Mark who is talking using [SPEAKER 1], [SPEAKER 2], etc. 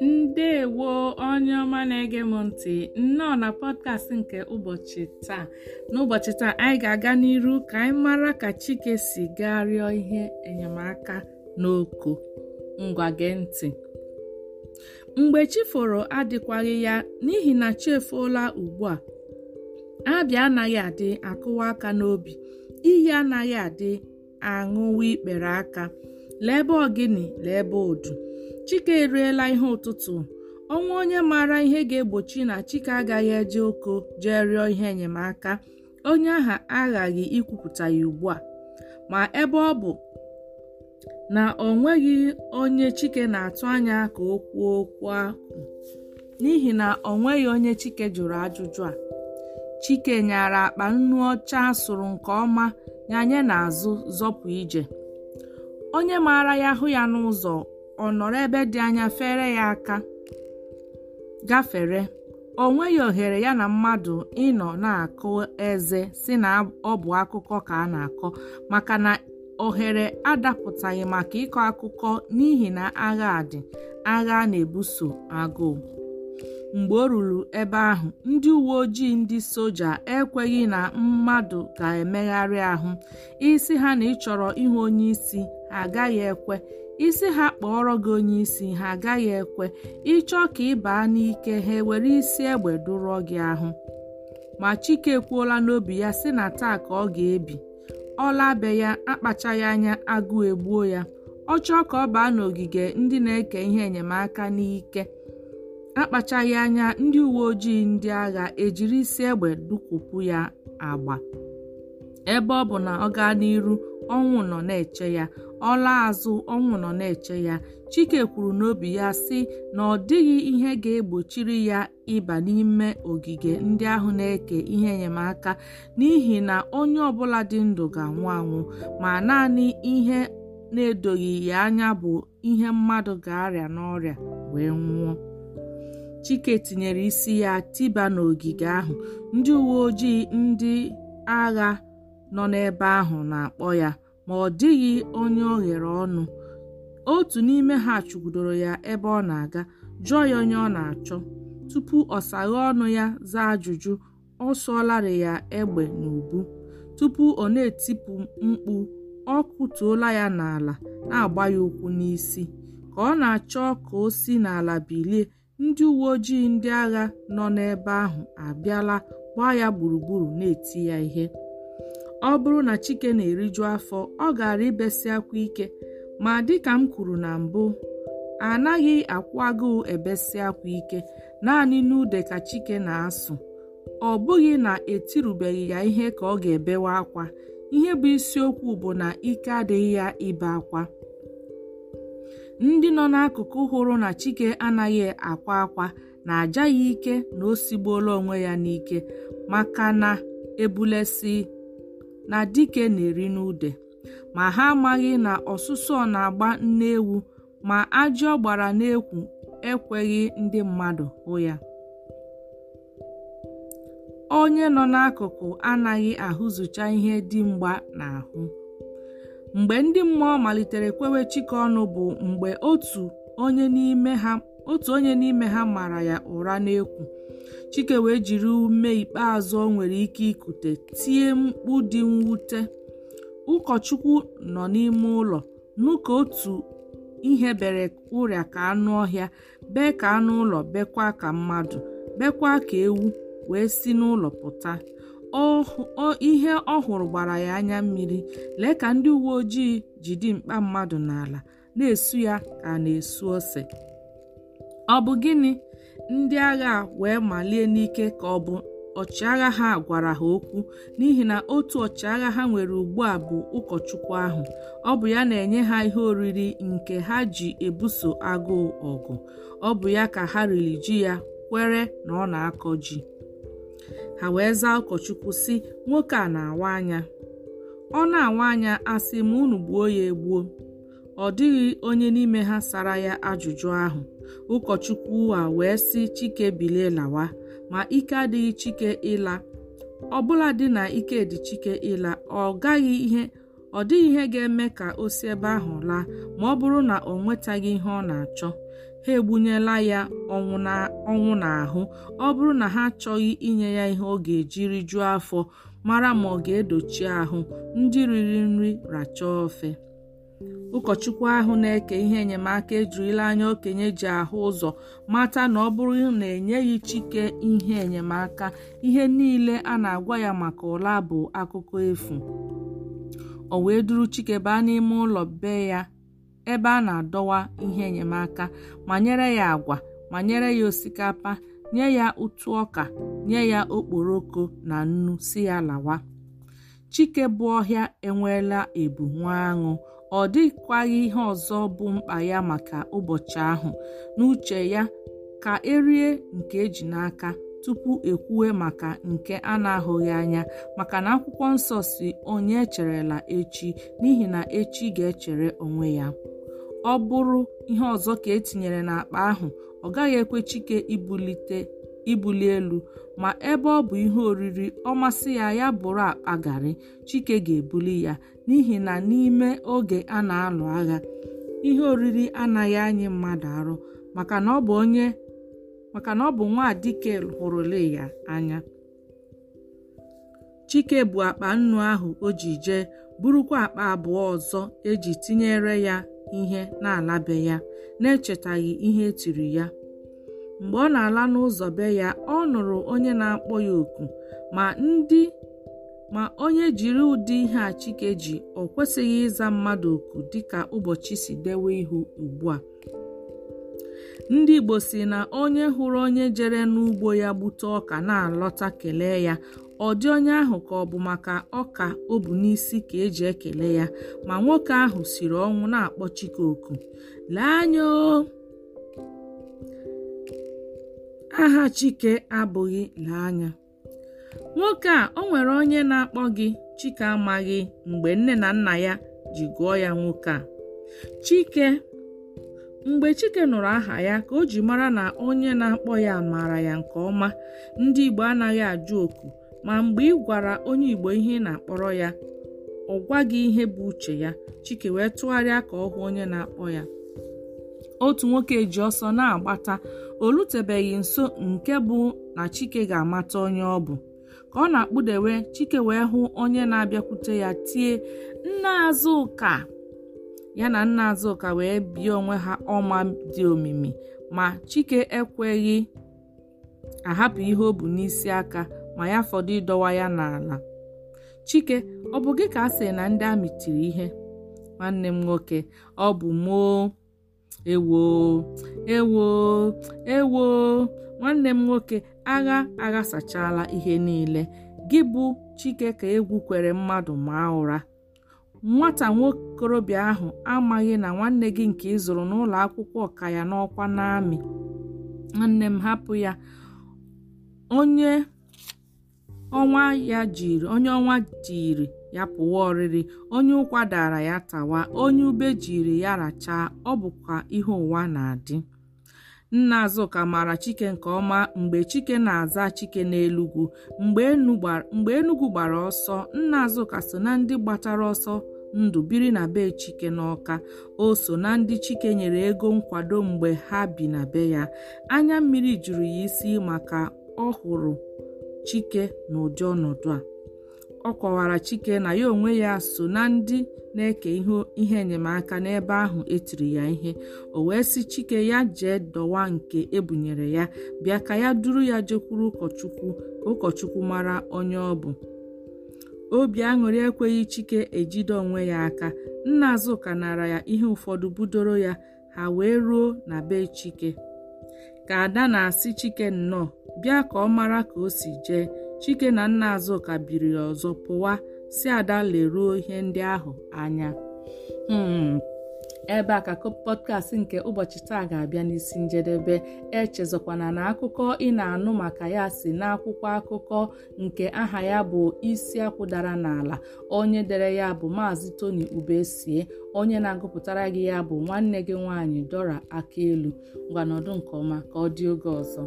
[SPEAKER 1] ndewo onye ọma na-ege m ntị nnọọ na pọdkast nke ụbọchị taa n'ụbọchị taa anyị ga-aga n'iru ka anyị mara ka Chike si gaa rịọ ihe enyemaka n'oko ngwa gee ntị mgbe chi foro adịkwaghị ya n'ihi na chi efola ugbu a abịa anaghị adị akụwa aka n'obi iyi anaghị adị aṅụwa ikpere aka lee ebe ogini lee ebe odu chike eriela ihe ụtụtụ ọnwa onye maara ihe ga-egbochi na chike agaghị eje oko jee rịọ ihe enyemaka onye aha aghaghị ikwupụta ya ugbu a ma ebe ọ bụ na ọ nweghị onye chike na-atụ anya ka o kwuo okwu ahụ n'ihi na ọ nweghị onye chike jụrụ ajụjụ a chike nyara akpa nnu ọcha sụrụ nke ọma ya na azụ zọpụ ije onye maara ya hụ ya n'ụzọ ọ nọrọ ebe dị anya fere ya aka gafere o nweghị ohere ya na mmadụ ịnọ na-akụ eze si na ọ bụ akụkọ ka a na-akọ maka na ohere adapụtaghị maka ịkọ akụkọ n'ihi na agha dị agha na-ebuso agụụ mgbe o ruru ebe ahụ ndị uwe ojii ndị soja ekweghị na mmadụ ga-emegharị ahụ isi ha na ịchọrọ ịhụ onye isi ha agaghị ekwe isi ha kpọọrọ gị onye isi ha agaghị ekwe ịchọ ka ị baa n'ike ha ewere isi egbe dụrọ gị ahụ ma Chike kwuola n'obi ya sị na taa ka ọ ga-ebi ọ labe ya akpachaghị anya agụụ egbuo ya ọ chọọ ka ọ baa n'ogige ndị na-eke ihe enyemaka n'ike akpachaghị anya ndị uwe ojii ndị agha ejiri isi egbe dukwupụ ya agba ebe ọ bụ na ọ gaa n'iru ọnwụ nọ na-eche ya ọla azụ ọnwụ nọ na-eche ya chike kwuru n'obi ya sị na ọ dịghị ihe ga-egbochiri ya ịba n'ime ogige ndị ahụ na-eke ihe enyemaka n'ihi na onye ọbụla dị ndụ ga-anwụ anwụ ma naanị ihe na-edoghị ya anya bụ ihe mmadụ ga-arịa n'ọrịa wee nwụọ Chike tinyere isi ya tiba n'ogige ahụ ndị uwe ojii ndị agha nọ n'ebe ahụ na-akpọ ya ma ọ dịghị onye o ghere ọnụ otu n'ime ha chụgudoro ya ebe ọ na-aga jụọ ya onye ọ na-achọ tupu ọ ọnụ ya zaa ajụjụ ọ sụọlarị ya egbe n'ubu tupu ọ na-etipụ mkpu ọ kụtuola ya n'ala na-agba ya ụkwụ n'isi ka ọ na-achọ ka o si n'ala bilie ndị uwe ojii ndị agha nọ n'ebe ahụ abịala gbaa ya gburugburu na-eti ya ihe ọ bụrụ na chike na-eriju afọ ọ gara ibesi akwa ike ma dịka m kwuru na mbụ anaghị akwụ agụụ ebesi akwa ike naanị n'ude ka chike na-asụ ọ bụghị na etirubeghị ya ihe ka ọ ga-ebewe akwa ihe bụ isiokwu bụ na ike adịghị ya ibe akwa ndị nọ n'akụkụ hụrụ na chike anaghị akwa akwa na-aja ya ike na o sigbuola onwe ya n'ike maka na ebulesi na dike na-eri n'ude ma ha amaghị na ọsụsọ na-agba nne ewu ma ajọ gbara n'ekwu ekweghị ndị mmadụ hụ ya onye nọ n'akụkụ anaghị ahụzụcha ihe dimgba n'ahụ mgbe ndị mmụọ malitere kwewe chike ọnụ bụ mgbe otu onye n'ime ha mara ya ụra n'ekwu chike wee jiri ume ikpeazụ ọ nwere ike ikute tie mkpu dị mwute ụkọchukwu nọ n'ime ụlọ n'ụka otu ihe bere ụrịa ka anụ ọhịa bee ka anụ ụlọ bekwa ka mmadụ bekwa ka ewu wee si n'ụlọ pụta ihe ọ hụrụ gbara ya anya mmiri lee ka ndị uwe ojii ji dimkpa mmadụ n'ala na-esu ya ka na-esu ose ọ bụ gịnị ndị agha wee malie n'ike ka ọ bụ ọchịagha ha gwara ha okwu n'ihi na otu ọchịagha ha nwere ugbu a bụ ụkọchukwu ahụ ọ bụ ya na-enye ha ihe oriri nke ha ji ebuso agụụ ọgụ ọ bụ ya ka ha riri ji ya kwere na ọ na-akọ ji ha wee zaa ụkọchukwu si nwoke a na-awa anya ọ na-awa anya asị ma unu gbuo ya egbuo ọ dịghị onye n'ime ha sara ya ajụjụ ahụ ụkọchukwu a wee sị chike bilie lawa ma ike adịghị chike ịla ọbụla dị na ike dị chike ịla ọ gaghị ihe ọ dịghị ihe ga-eme ka o si ebe ahụ laa ma ọ bụrụ na ọ nwetaghị ihe ọ na-achọ ha egbunyela ya ọnwụ n'ahụ ọ bụrụ na ha achọghị inye ya ihe ọ ga-ejiri rijuo afọ mara ma ọ ga-edochi ahụ ndị riri nri rachaa ofe ụkọchukwu ahụ na-eke ihe enyemaka ejirila anya okenye ji ahụ ụzọ mata na ọ bụrụ na enyeghị chike ihe enyemaka ihe niile a na-agwa ya maka ụla bụ akụkọ efu o wee duru chike baa n'ime ụlọ be ya ebe a na-adọwa ihe enyemaka ma nyere ya agwa ma nyere ya osikapa nye ya ụtụ ọka nye ya okporoko na nnu si ya lawa chike bụ ọhịa enweela ebu nwa aṅụ ọ dịkwaghị ihe ọzọ bụ mkpa ya maka ụbọchị ahụ n'uche ya ka erie nke eji n'aka tupu ekwuwe maka nke a na-ahụghị anya maka na akwụkwọ nsọ si onye echerela echi n'ihi na echi ga-echere onwe ya ọ bụrụ ihe ọzọ ka etinyere n'akpa ahụ ọ gaghị ekwe Chike ibulite ibuli elu ma ebe ọ bụ ihe oriri ọ masị ya ya bụrụ akpa garị Chike ga-ebuli ya n'ihi na n'ime oge a na-alụ agha ihe oriri anaghị anyị mmadụ arụ maka na ọ bụ onye maka na ọ bụ nwa dike hụrụle ya anya Chike bụ akpa nnu ahụ o ji jee burukwa akpa abụọ ọzọ eji tinyere ya ihe na-alabe ya na-echetaghị ihe etiri ya mgbe ọ na-ala n'ụzọ be ya ọ nụrụ onye na-akpọ ya oku ma ndị ma onye jiri ụdị ihe a Chike ji ọ kwesịghị ịza mmadụ oku dịka ụbọchị si dewe ihu ugbu a ndị Igbo si na onye hụrụ onye jere n'ugbo ya gbute ọka na-alọta kelee ya ọ dị onye ahụ ka ọ bụ maka ọka o bu n'isi ka eji ekele ya ma nwoke ahụ siri ọnwụ na-akpọ Chike oku lee anya aha Chike abụghị lee nwoke a o nwere onye na-akpọ gị Chike amaghị mgbe nne na nna ya ji gụọ ya nwoke a Chike mgbe Chike nụrụ aha ya ka o ji mara na onye na-akpọ ya maara ya nke ọma ndị Igbo anaghị ajụ oku ma mgbe ị gwara onye Igbo ihe ị na-akpọrọ ya ọ gwaghị ihe bụ uche ya Chike wee tụgharịa ka ọ hụ onye na-akpọ ya otu nwoke ji ọsọ na-agbata o nso nke bụ na Chike ga-amata onye ọ bụ ka ọ na-akpụdewe Chike wee hụ onye na-abịakwute ya tie nna Azụka ya na nna Azụka wee bie onwe ha ọma dị omimi ma Chike ekweghị ahapụ ihe o bụ n'isi aka ma ya fọdụ ịdọwa ya n'ala chike ọ bụ gị ka a sị na ndị amị tiri ihe nwanne m nwoke ọ bụ moo ewo ewo ewo nwanne m nwoke agha aghasachala ihe niile gị bụ chike ka egwu kwere mmadụ maa ụra nwata nwokorobịa ahụ amaghị na nwanne gị nke ịzụrụ n'ụlọ akwụkwọ ka ya n'ọkwa n'amị nwanne m hapụ ya onye ọnwa onye ọnwa jiri ya pụwa ọrịrị onye ụkwa dara ya tawa onye ube jiri ya rachaa ọ bụkwa ihe ụwa na-adị nna azụka maara chike nke ọma mgbe chike na-aza chike n'elugwu mgbe enugwu gbara ọsọ nna azụka so na ndị gbatara ọsọ ndụ biri na be chike n'ọka o so na ndị chike nyere ego nkwado mgbe ha bi na be ya anya mmiri juru ya isi maka ọ hụrụ Chike n'ụdị ọnọdụ a ọ kọwara Chike na ya onwe ya so na ndị na-eke ihe enyemaka n'ebe ahụ etiri ya ihe o wee sị Chike ya jee dọwa nke ebunyere ya bịa ka ya duru ya jekwuru ụkọchukwu ka ụkọchukwu mara onye ọ bụ obi aṅụrị ekweghị Chike ejide onwe ya aka nna Azụka nara ya ihe ụfọdụ budoro ya ha wee ruo na be Chike ka ada na-asị chike nnọọ bịa ka ọ mara ka o si jee chike na nna azụka biri ọzọ pụwa si ada leruo ihe ndị ahụ anya hmm. ebe a ka pọdkast nke ụbọchị taa ga-abịa n'isi njedebe echezọkwana na akụkọ ị na-anụ maka ya si n'akwụkwọ akụkọ nke aha ya bụ isi akwụdara n'ala onye dere ya bụ maazị Tony Ubesie onye na-agụpụtara gị ya bụ nwanne gị nwaanyị Dora akaelu ngwanọdụ nke ọma ka ọ dị oge ọzọ